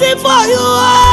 waiting for you.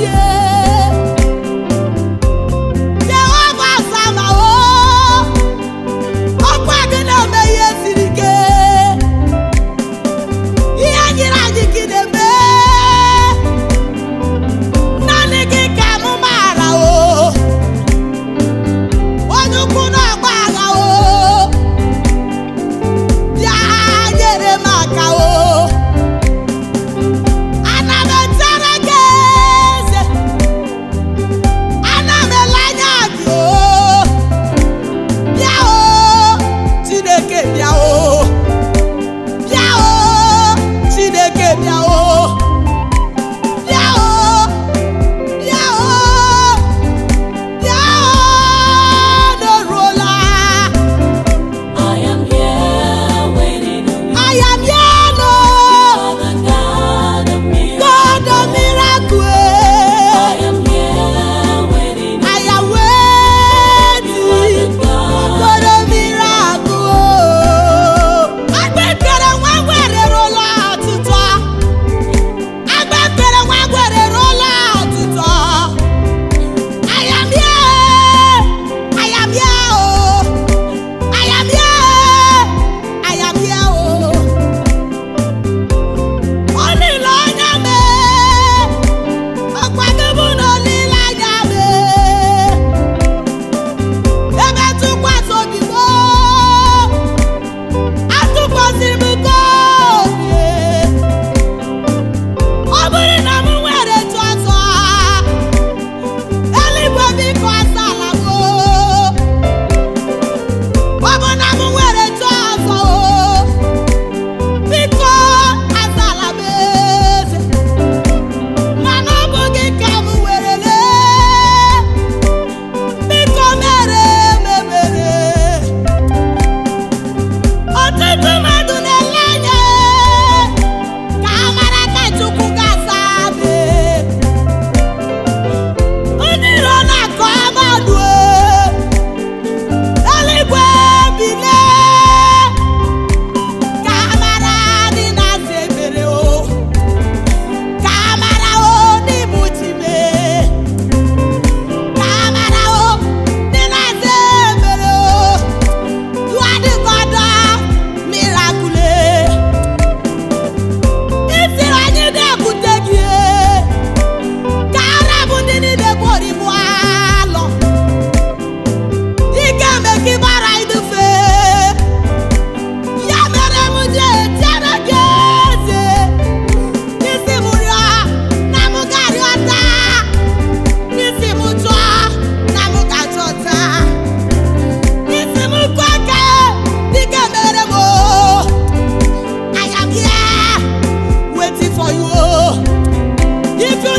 yeah Keep it